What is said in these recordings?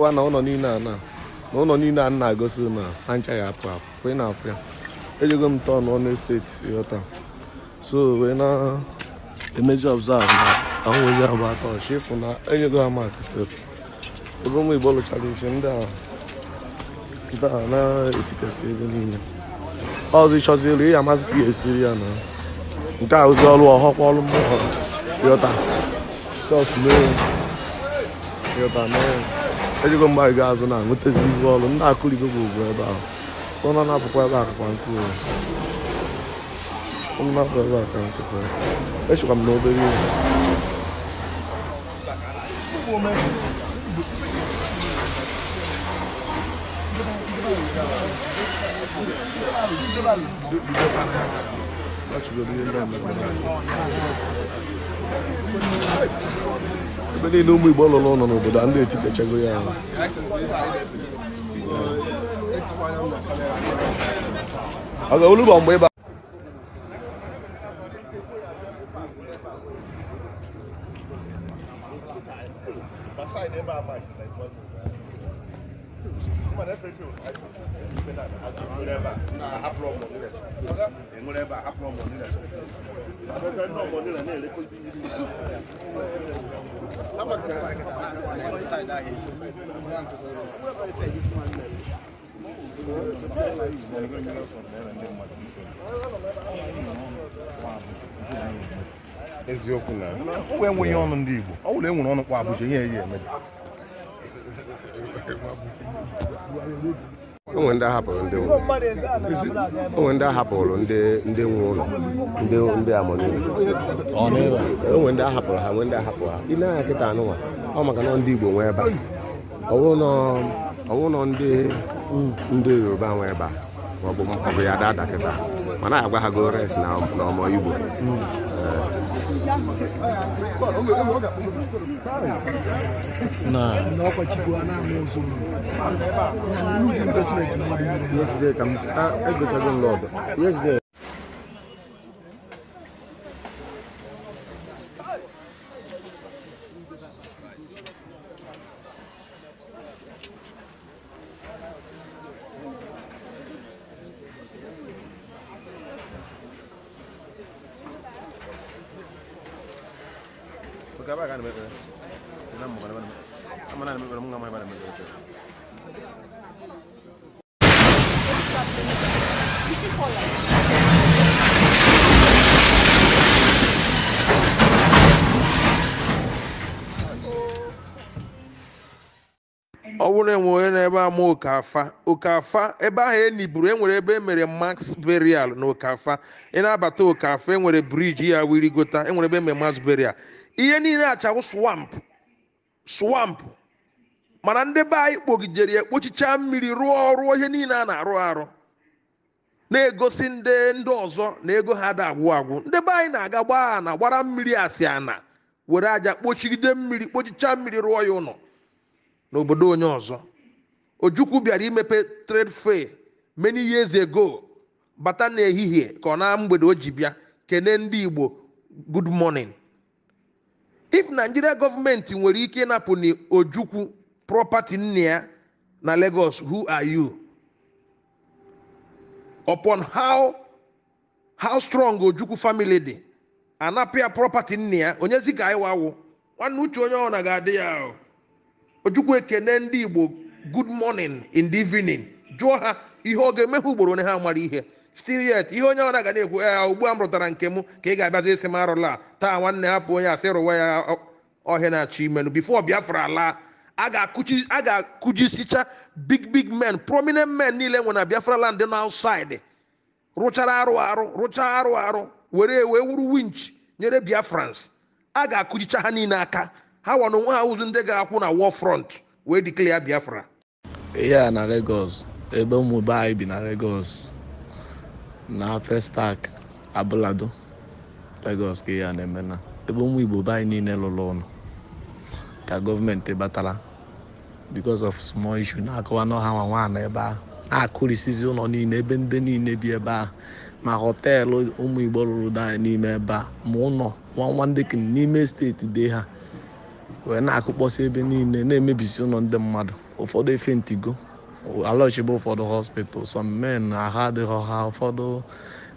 wa na ụlọ niile a na na ụlọ niile a na-agosi na ha nchaghị apụ apụ ị na-afụ ya ejego m tọn ọnụ steeti ghọta so wee na-emezi ọbzavụ na ahụghịzi abụ atọ chịfụ na enyego ha mak steeti oge ụmụ igbo lụchara ife ndị a ndị a na-etikasị ebe niile ọzọ ịchọziri ị amasị ka esiri ya na nke a ozi ọrụ ọhọkwa ọrụ mmụọ ghọta jọs mee ghọta mee ejikwa mgbaga azụ na-anwetazi ihu ọrụ nna akụligo dar. então não ahụ ọnụ na-apụkwa ebe akụkwa nkụ ọnụ na-apụ ebe a Eu vou echekwa m n'obere ihe ebe niile ụmụ Igbo lụrụ ụlọ n'obodo a ndị etikechago ya ha. ọ eziokwu na enweghị ọnụ ndị Igbo ọ bụrụ enwere ọnụ kwa Abuja ihe ya emebi onwe ndị ahapụrụ ndị onwe ndị ahapụrụ ndị ndị nwe ụlọ ndị ndị amụrụ onwe ndị ahapụrụ ha nwe ndị ahapụrụ ha I na-anya kịta anụnwa ọ maka na ndị Igbo nwee ebe a ọwụrụ nọ ndị ndị Yoruba nwee ebe a ọ bụ ya dị adakịta mana agwa ha go res na ọmọ igbo nan magana na ọ bụrụ e n'ebe ama okafa okafa ebe ahụ eniburu enwere ebe emere max burial na okafa ị na-abata okafa enwere briji ya wirigota gota enwere ebe e mere max burial ihe niile achawụ swamp swamp mana ndị be anyị kpogidere ya mmiri rụọ ọrụ ihe niile a na-arụ arụ na-egosi ndị ndị ọzọ na ego ha da agwụ agwụ ndị be anyị na-aga gbaa ana gbara mmiri asị ana were aja kpochigide mmiri kpochicha mmiri rụọ ya ụlọ n'obodo onye ọzọ ojukwu bịara imepe trade fair many years ago bata n'ehihie ka ọ na mgbede o ji bịa kenee ndị igbo good morning if nigeria gọọmenti nwere ike ịnapụ ojukwu prọpati nne na lagos who are you upon how how strong ojukwu family dị anapụ ya nnia nne ya onyezi ka anyị nwanne uche onye ọbụla ga-adị ya ojukwu ekene ndị igbo good morning in the evening jụọ ha ihe ọ ga-emehụ ugboro onye ha mara ihe still yet ihe onye ọra ga na-ekwu ya eh, ugbu a m rụtara nke m ka ị ga-abịazi isi m arụla taa nwanne hapụ onye asị rụwa ya ọhịa na-achọ imenụ bifo biafra laa a ga-akụjisicha big big men prominent men niile nwe na biafra land na outside rụchara arụ arụ rụchaa arụ arụ were wee wuru winch nyere biafrans a ga-akụjicha ha niile aka ha nwa onwe ha ụzụ ndị ga-akwụ na war front wee dikle ya biafra ihe a na Lagos ebe ụmụ anyị bi na Lagos na festac abụlado Lagos ka ihe a na-eme na ebe ụmụ Igbo be anyị niile lụrụ ụlọ ka gọọmenti batara bikos of smal issue na-akọwa na ọha nwa na ebe ahụ na-akụrisizi ụlọ niile ebe ndị niile bi ebe ahụ ma họteelụ ụmụ Igbo lụrụ anyị n'ime ebe a ma ụlọ nwa nwa ndị n'ime steeti dị ha wee na-akụkpọsị ebe niile na-emebisi ụlọ ndị mmadụ ụfọdụ efe ntigo alọchibe ụfọdụ hospital some men ahụ adịghị ha ụfọdụ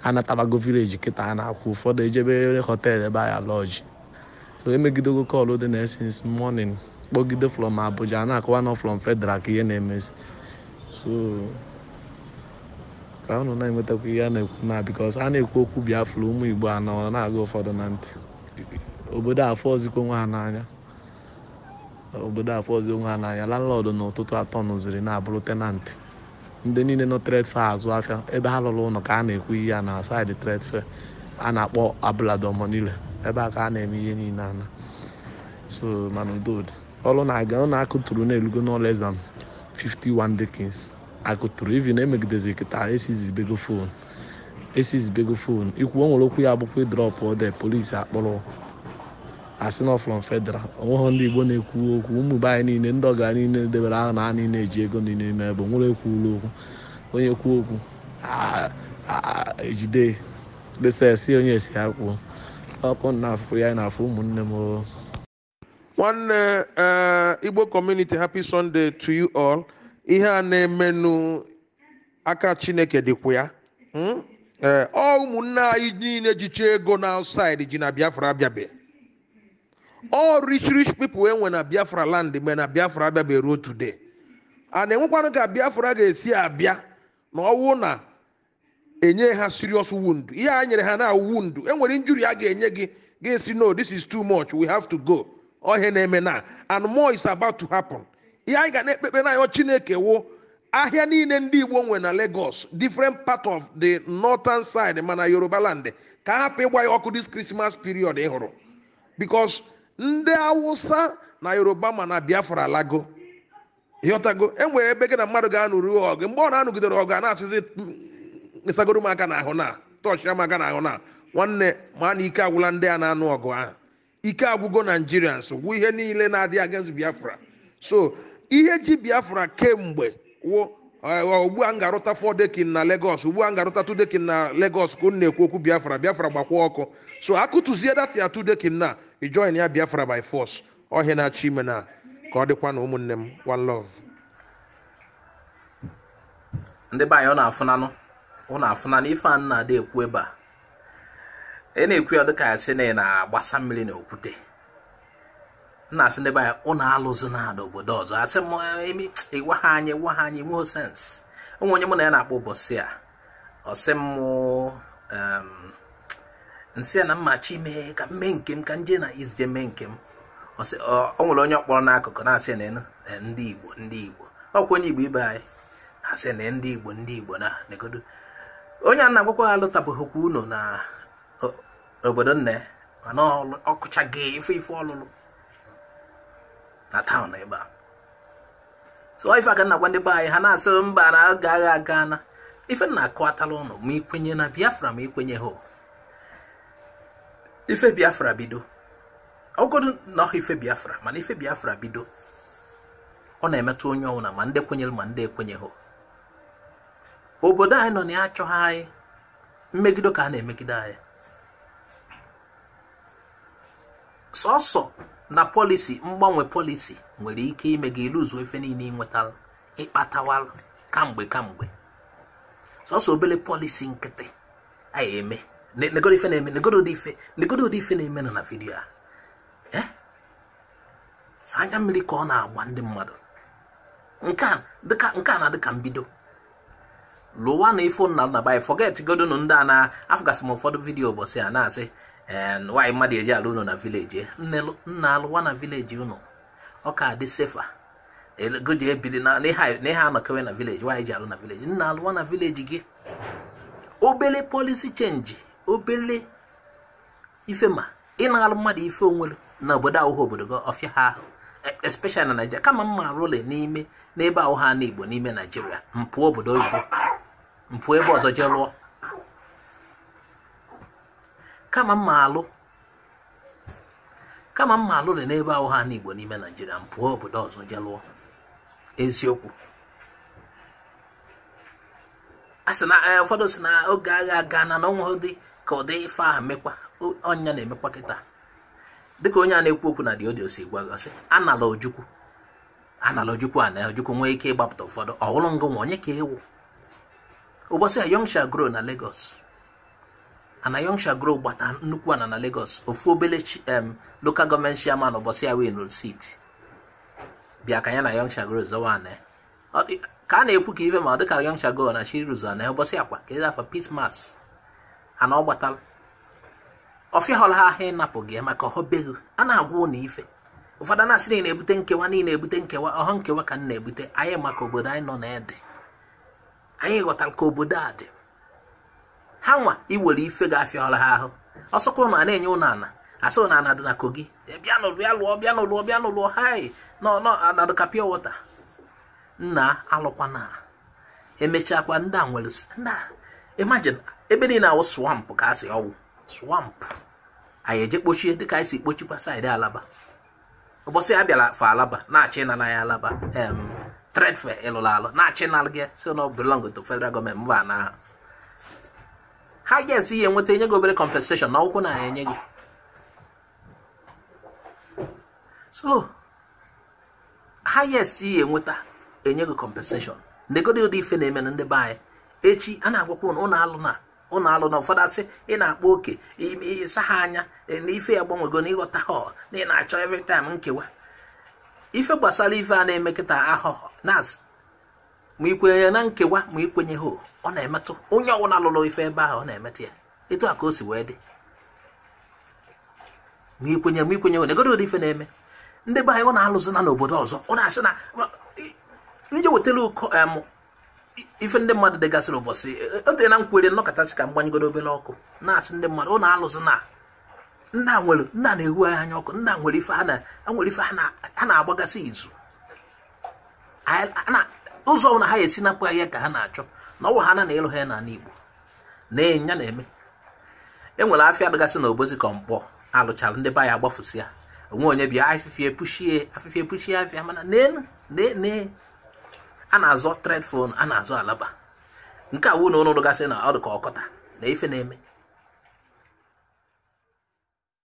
anatabago village kịta na-akwụ ụfọdụ ejebe họteelụ ebe anyị alọji so emegidego kọlụ dị na since kpọgide from Abuja na-akọwa nọ from fedral ka ihe na-emezi so ka ụnụ na-enwetakwa ihe a na-ekwu na because a na-ekwu okwu Biafra ụmụ Igbo anọ na-aga ụfọdụ na ntị obodo afọ ozikwo nwa ha n'anya obodo afọzi onwe ha n'anya landlọdụ n'ụtụtụ atọ nụziri na-abụrụ tenanti ndị niile nọ tredfe azụ afịa ebe ha lụrụ ụlọ ka a na-ekwu ihe ya na saịdị tredfe a na-akpọ niile ebe a ka a na-eme ihe niile ana so mana udodị ọrụ na-aga ọ na-akụturu na-elugo no less than 51 dekins akụturu ivi na emegidezi kịta esizibego fon esizibego fon ikwu o nwere okwu ya abụkwa drọpụ ode polisi akpọrọ asị nọfụlọ federal onweghị ndị igbo na-ekwu okwu ụmụ be anyị niile ndị ọga niile debere ahụ na a niile eji ego niile n'ime ebe nwere ekwuola okwu onye kwuo okwu ejide kpesa esi onye esi akwụ ọkụ na afụ ya na afụ ụmụnne m nwanne e, igbo community happy sunday to you all ihe a na-emenụ aka chineke dịkwa ya hmm? e, ọ ụmụnne anyị niile jicha ego na ji na biafra abịabe all rich rich people enwe na biafra land mgbe na biafra abịabeghị ruo today a na-enwekwanụ ka biafra ga-esi abịa na ọwụ na enye ha serious wound ihe a nyere ha na wound enwere injury a ga-enye gị ga-esi no this is too much we have to go ohe na-eme na and more is about to happen ihe anyị ga na-ekpekpe n'anyọ chineke wụ ahịa niile ndị igbo nwe na lagos different part of the northern side mana yoruba land ka hapụ ịgba ya ọkụ this christmas period ị hụrụ because ndị awụsa na yoruba ma na biafra lago ịghọtago enwere ebe gị na mmadụ ga-anụrụ ọgụ mgbe ọ na-anụgidere ọgụ a na-asịzi ịsagoro m aka n'ahụ na tọchị m aka n'ahụ na nwanne ma na ike agwụla ndị a na-anụ ọgụ ahụ ike agwụgo naijiria nso gwụ ihe niile na adị against biafra so ihe ji biafra kemgbe wụ Eh, ugbu a m ga-arụta dekin na legos ugbu a m ga-arụta dekin na legos ka unu na-ekwu okwu biafra biafra gbakwa ọkụ so akụtụzie data ya tu dekin na ijoin ya biafra by force ọhịa na-achọ ime na ka ọ dịkwa na ụmụnne m one love ndị be anyị ọ na-afụnanụ ọ na-afụnanụ ife a na-ada ekwu ebe a ị e na-ekwu ya dịka ya sị na ị na-agbasa mmiri na okwute na-asị ndị be anyị ụnụ alụzi na obodo ọzọ asị m emi ịgwa ha anyị gwa ha anyị nweghị sens onwe onye mụ na ya na-akpọ ụbọchị a ọsị m nsị a na mmachi mee ka mme nke m ka nje na izije mee nke m ọ nwere onye ọkpọrọ n'akụkụ na-asị na eh, ndị igbo ndị igbo ọkwa onye igbo ibe anyị na-asị na ndị igbo ndị igbo na negodo onye a na-agwakwa alụtabụghịkwa unu na obodo nne mana ọkụchaghị ife ife ọlụlụ na taụn ebe a so ife aka na-agwa ndị be anyị ha na-asị mba na agaghị aga na ife na ụnụ ma ikwenye na biafra ma ikwenye ha ife biafra bido ọgodu na ọha ife biafra mana ife biafra bido ọ na-emetụ onye na ma ndị kwenyere ma ndị ekwenye ha obodo anyị nọ na ya achọghị anyị mmegide ka a na-emegide anyị sọsọ na pọlisi mgbanwe pọlisi nwere ike ime gị iluzu efe niile ịnwetara ịkpatawara kamgbe kamgbe sọsọ obere pọlisi nkịtị anyị eme negodo ife na-eme negodo ụdị ife negodo ụdị ife na-eme nọ na vidiyo a e? sa anya mmiri ka ọ na-agba ndị mmadụ nke a na dịka mbido lụwa na ifo nna nna bụ anyị fọget ndị a na afụgasị m ụfọdụ vidiyo ụbọchị a na-asị nwaanyị mmadụ eji alụ ụnụ na vileji nna alụwa na vileji ụnụ ọ ka dị sefa ego ji ebili na ihe anọkewe na vileji nwaanyị ji alụ na vileji nna alụwa na vileji gị obele polisi chenji obele ife ma ị na mmadụ ife onwere na obodo ahụhụ obodo gị ọfịa ha ahụ e, especially na Naijiria kama mma arụle n'ime n'ebe ahụ ha na Igbo n'ime Naijiria. mpụ obodo oyibo mpụ ebe ọzọ jee lụọ kama mma alụ kama mma alụ dị n'ebe ahụ ha n'Igbo n'ime Naijiria m pụọ obodo ọzọ je lụọ eziokwu a sị na eh, ụfọdụ si na oge agha aga na na dị ka ụdị ife ahụ mekwa ọnya na-emekwa kịta dịka onye a na-ekwu okwu na diodio si gwagọsị anala ojukwu anala ojukwu a na ojukwu nwee ike ịgbapụta ụfọdụ ọhụrụ ngụ nwa onye ka ewu ụbọchị a young shall na Lagos Anayoncha Grow gbata nnukwu ana na Lagos ofu obele em um, local gọọmenti chairman ụbọchị ya wee nụrụ siti bịa ka ya na Anayoncha Grow zọwa ana ka a na-ekwu ka ife ma dịka Anayoncha Grow na ruzo na ụbọchị akwa ka afọ afa peace mass ana ọ gbatara ọfịa họrọ ha ịnapụ gị maka ọhọbeghi a na-agwa ụlọ ife ụfọdụ na-asị na ị na-ebute nkewa na ị na-ebute nkewa ọhọ nkewa ka m na-ebute anyị maka obodo anyị nọ na ịdị anyị ghọtara ka obodo a dị ha nwa iwere ife ga-afịala ha ahụ ọsọkwụrụ na a na-enye ụnụ ana asụ na ana dị na kogi eh, bịa nụlụ ya lụọ bịa nụlụọ bịa nụlụọ hai nọ anadụ wọta nna alụkwana emechakwa ndị a nwere nna imagine ebe niile awụ swamp ka a sị ọwụ swamp anyị eje kpochie dịka anyị si kpochikwa saịdị alaba ụbọchị a bịara fa alaba na-achị na ya alaba em tredfe ịlụrụ alụ na-achị na gị si na belong to federal gọọmenti mba na ahụ ha agensị ya enweta enye gị obere compensation na ụkwụ na ya enye gị so highest ya enweta enye gị compensation ndegodi ụdị ife na-eme na ndị be anyị echi a na-agwakwa ụnụ ụnụ alụ na ụnụ alụ na ụfọdụ asị ị na-akpọ oke ịsa ha anya na ife ya gbanwego na ịghọta ha na ị na-achọ every time nkewa ife gbasara ife a na-eme kịta ahụhụ na ma ikwenye na nkewa ma ikwenye ha ọ na-emetụ onye ọbụla lụrụ ife ebe ahụ ọ na-emetụ ya etu a ka o si wee dị ma ikwenye ma ikwenye ho na ife na-eme ndị be anyị ọ na-alụzi na n'obodo ọzọ ọ na-asị na nje wetara ụkọ ife ndị mmadụ dịgasịrị ụbọchị e, e, ote na nkwere nnọkọtasị ka m obere ọkụ na-asị ndị mmadụ ọ na-alụzi na nna nwere nna na-ehu anya ọkụ nna nwere ife ha na-agbagasị izu ụzọ ọbụla ha esi napụ ahịa ka ha na-achọ na ọwụ ha na na ịlụ ha ya n'ala Igbo na-enya na-eme enwere afịa dịgasị na obozi ka mkpọ alụchara ndị be ya agbafụsị ya onwe onye bịa afịfịa epuchie afịfịa epuchie afịa mana nee a na-azọ tredfon a na-azọ alaba nke a wụ na ụnụ dịgasị na ọ dị ka ọkọta na ife na-eme